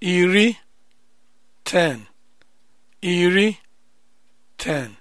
iri ten iri 10.